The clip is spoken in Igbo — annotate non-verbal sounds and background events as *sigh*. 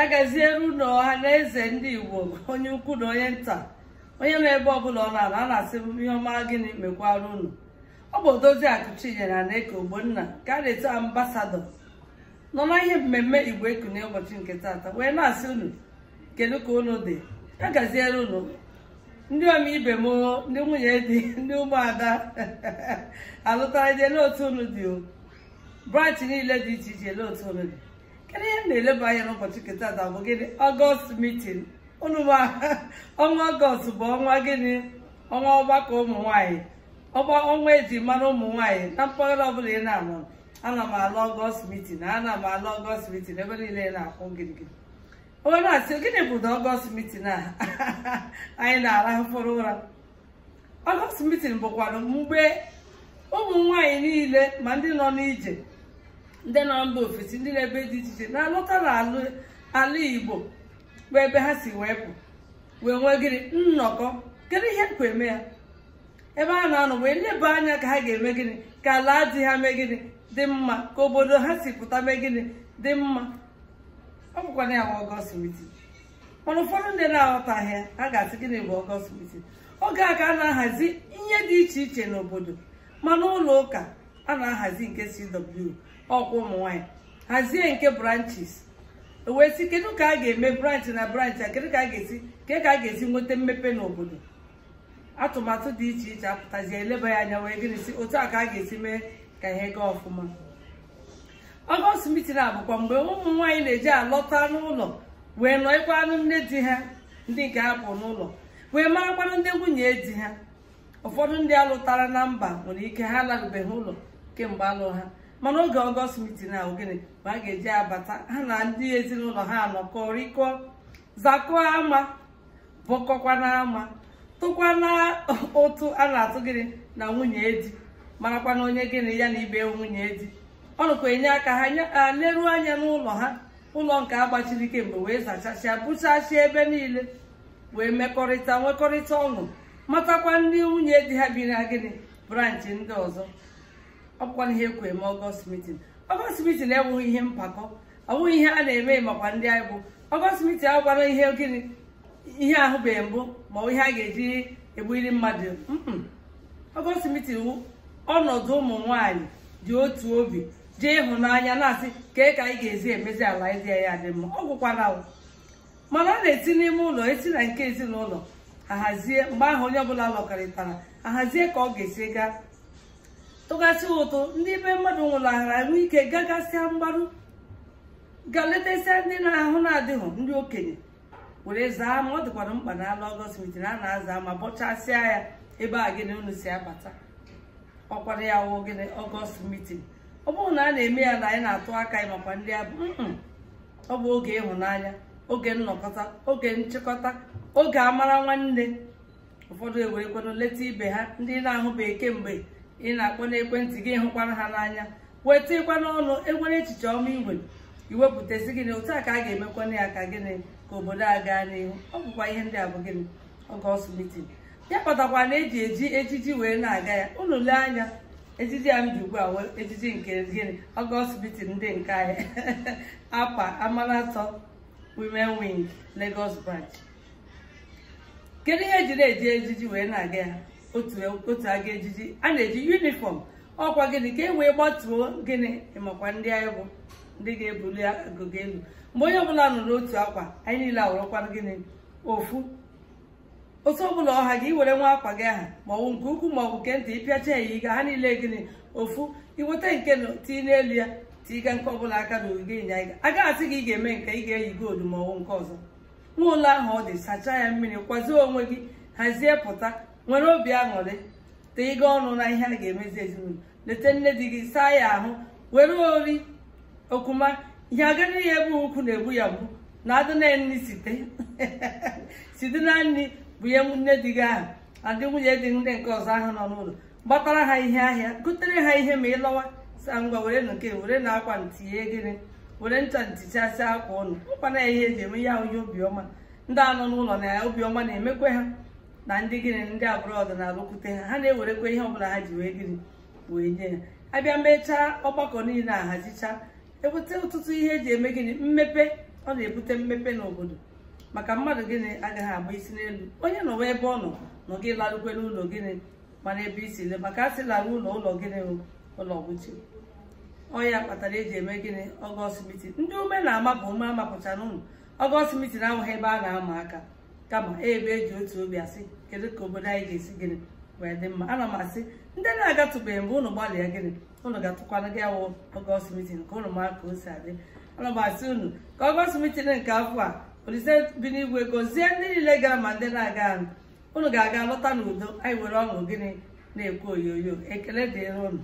agaziere ụnụ ọha na eze ndị igbo onye ukwu na onye nta onye nọ ebe ọbụla ọ na-anọ a na-asị ihe ọma gịnị mekwara unu ọ bụ odozi akụchinyere na eke ogbonna ka a na-eto nọ na ihe mmemme igbo eku na ụbọchị nke taata wee na-asị unu kedu ka unu dị agaziere unu ndị ọma ibe m ndị nwunye dị ndị ụmụada *laughs* alụtara je n'otu unu dị o branch niile dị iche iche n'otu unu dị kedu ihe m na-eleba anya n'ụbọchị nketa ada bụ gịnị ọgọst mitin unu ọnwa ọgọst bụ ọnwa gịnị ọnwa ọgbakọ ụmụ nwaanyị ọnwa eji mara ụmụ na mpaghara ọbụla ị na-anọ ana m alụ ọgọst mitin ana m alụ ọgọst mitin ebe niile na-akwụ gịrịgịrị onye na-asị gịnị bụ na ọgọst mitin a anyị na mkpụrụ ụra ọgọst mitin bụkwanụ mgbe ụmụ nwanyị niile ma ndị nọ n'ije ndị nọ mba ofesi ndị na-ebe dị iche iche na-alọta n'ala igbo bụ ebe ha si wee pụ wee nwee gịnị nnọkọ kedu ihe kwa eme ya ebe a na-anọ wee leba anya ka ha ga-eme gịnị ka ala dị ha mee gịnị dị mma ka obodo ha si pụta mee gịnị dị mma ọ bụkwa na ya bụ ọgọst mitin mana ụfọdụ ndị na-aghọtaghị ya ha ga-asị gịnị bụ ọgọst mitin oge a ka a na-ahazi ihe dị iche iche n'obodo ma n'ụlọ ụka a na-ahazi nke CW ọkwa ụmụ nwanyị hazie nke branches e wee sị kedu ka a ga-eme branch na branch a kedu ka a ga-esi ke ka a ga-esi nweta mmepe n'obodo atụmatụ dị iche iche apụtazie eleba ya anya wee gịnị si otu a ka a ga-esi mee ka ihe gaa ọfụma ọgọst mitin abụkwa mgbe ụmụ nwaanyị na-eji alọta n'ụlọ wee nọịkwa anụ nne di ha ndị nke apụ n'ụlọ wee marakwanụ ndị nwunye di ha ụfọdụ ndị alụtara na mba nwere ike ha alarubeghị ụlọ kemgbe alụ ha mana oge ọgọst mitin ahụ gịnị ma a ga-eji abata ha na ndị ezinụlọ ha nọkọ rikọ zakụọ ama bọkọkwa n'ama tụkwa na ụtụ a na-atụ gịnị na nwunye di marakwa na onye gịnị ya na ibe nwunye di ọ nụkwa enye aka ha leruo anya n'ụlọ ha ụlọ nke agbachiri kemgbe wee zachasịa bụchasịa ebe niile wee mekọrịta nwekọrịta ọṅụ matakwa ndị nwunye di ha bi na gịnị branchi ndị ọzọ ọkwa ihe ekwe eme ọgọst mitin ọgọst mitin ihe mpakọ ọwụghị ihe a na-eme makwa ndị anyị bụ ọgọst mitin ihe gịnị ihe ahụbeghị mbụ ma ihe a ga-eji egbuli mmadụ ọgọst mitin ọnọdụ ụmụ nwaanyị dị otu obi jee ịhụnanya na-asị kee ka anyị ga-ezi emezi ala ịdị ya dị mma ọ gwụkwara mana ọ na-eti n'ime ụlọ esi na nke ezinụlọ ahazie mgbe ahụ onye ọbụla lọkọrịtara ahazie ka ọ ga-esi gaa tụgasị ụtụ ndị be mmadụ nwụrahara ahụike ike gagasịa ga letesịa ndị na-ahụ na-adịghị ndị okenye were zaa ma ọ dịkwara mkpa na ala ọgọst mitin a na-aza ma bọchasịa ya ebe a gịnị unu si abata ọkwara ya wụ gịnị ọgọst mitin ọ bụrụ na a na-eme ya na anyị na-atụ aka ya makwa ndị abụ ọ bụ oge ịhụnanya oge nnọkọta oge nchịkọta oge amara nwanne ụfọdụ ewerekwanụ leta ibe ha ndị na-ahụbeghị kemgbe ị na-akpọ n'ekwentị gị hụkwara ha n'anya weta ịkwa n'ọnụ enwere echiche ọma igwe iwepụtazi gịnị otu a ka a ga emekwa ya ka gịnị ka obodo a gaa n'ihu ọ bụkwa ihe ndị a bụ gịnị oge ọsụ mitin ya kpatakwa na eji eji ejiji wee na-aga ya unu lee anya ejiji a m ji ugbu a wee ejiji nke gịnị oge ọsụ mitin ndị nke anyị *laughs* apa amanatọ women wing Lagos branch kedu ihe eji na-eji ejiji wee na-aga ya otu e, aga ejiji a na-eji yunifọm ọkwa gịnị ka e wee gbatuo gịnị ịmakwa ndị anyị bụ ndị ga-ebuli agụga elu mgbe onye ọbụla nọ n'otu akwa anyị niile awụrụkwara gịnị ofu otu ọbụla ọha gị iwere nwa akwa gị aha maọbụ nke ukwu maọbụ nke ntị ịpịacha ya yi ha niile gịnị ofu iweta nke tii n'elu ya tiiga nke ọbụla aka na ogige ịnya ịga a gaghị asị gị ị ga-eme nke ị ga-eyi goolu maọbụ nke ọzọ nwa ụlọ ahụ ọ dị sachaa ya mmiri kwazie onwe gị hazie pụta nwere obi aṅụrị tee ịga ọnụ na ihe a ga-emezi ezinụlọ leta nne di gị saa ya ahụ were ori okuma ihe agara ya ebe ukwu na-egbu ya bụ na adị nri site *laughs* site na nri bụ ihe nne di gị ahụ adị nwunye dị ndị nke ọzọ ahụ nọ n'ụlọ gbatara ha ihe ahịa gotere ha ihe ma ịlọwa lọwa sa ngwa were nke were na akwa ntinye gịrị were ncha ntichasị akwa ụnụ mkpana ya ihe eji eme ya onye obiọma ndị anọ n'ụlọ na obiọma na-emekwe ha na ndị gịnị ndị agbụrụ ọdịnala okwute ha ha na-ewerekwa ihe ọbụla ha ji wee gịnị wee nye ya abịa mechaa ọgbakọ niile ahazicha ebute ọtụtụ ihe eji eme gịnị mmepe ọ na-ebute mmepe n'obodo maka mmadụ gịnị agaghị agba isi n'elu onye nọwa ebe ọ nọ nọ gị larukwe n'ụlọ gịnị mana ebe isi le maka a sị lara ụlọ ụlọ gịnị ụlọ gwuchie ọya kpatara eji eme gịnị ọgọst mitin ndị ume na-ama bụ ume amapụchara ụlọ ọgọst na ahụghị ebe a na-ama aka kama ebe eji otu obi asị kedu ka obodo anyị ga-esi gịnị wee dị mma ana m asị ndị na-agatụbeghị mgbe ụnụ gbalịa gịnị ụnụ ga-atụkwana gị awụ ọgọst mitin ka ụnụ maa ka o si adị ana m asị unu ka ọgọst mitin nke afọ a olise bi n'igwe gọzie ndị niile gara ma ndị na-aga anụ ụnụ ga-aga lọta n'udo anyị nwere ọṅụ gịnị na-ekwu oyoyo ekele dịrị ụnụ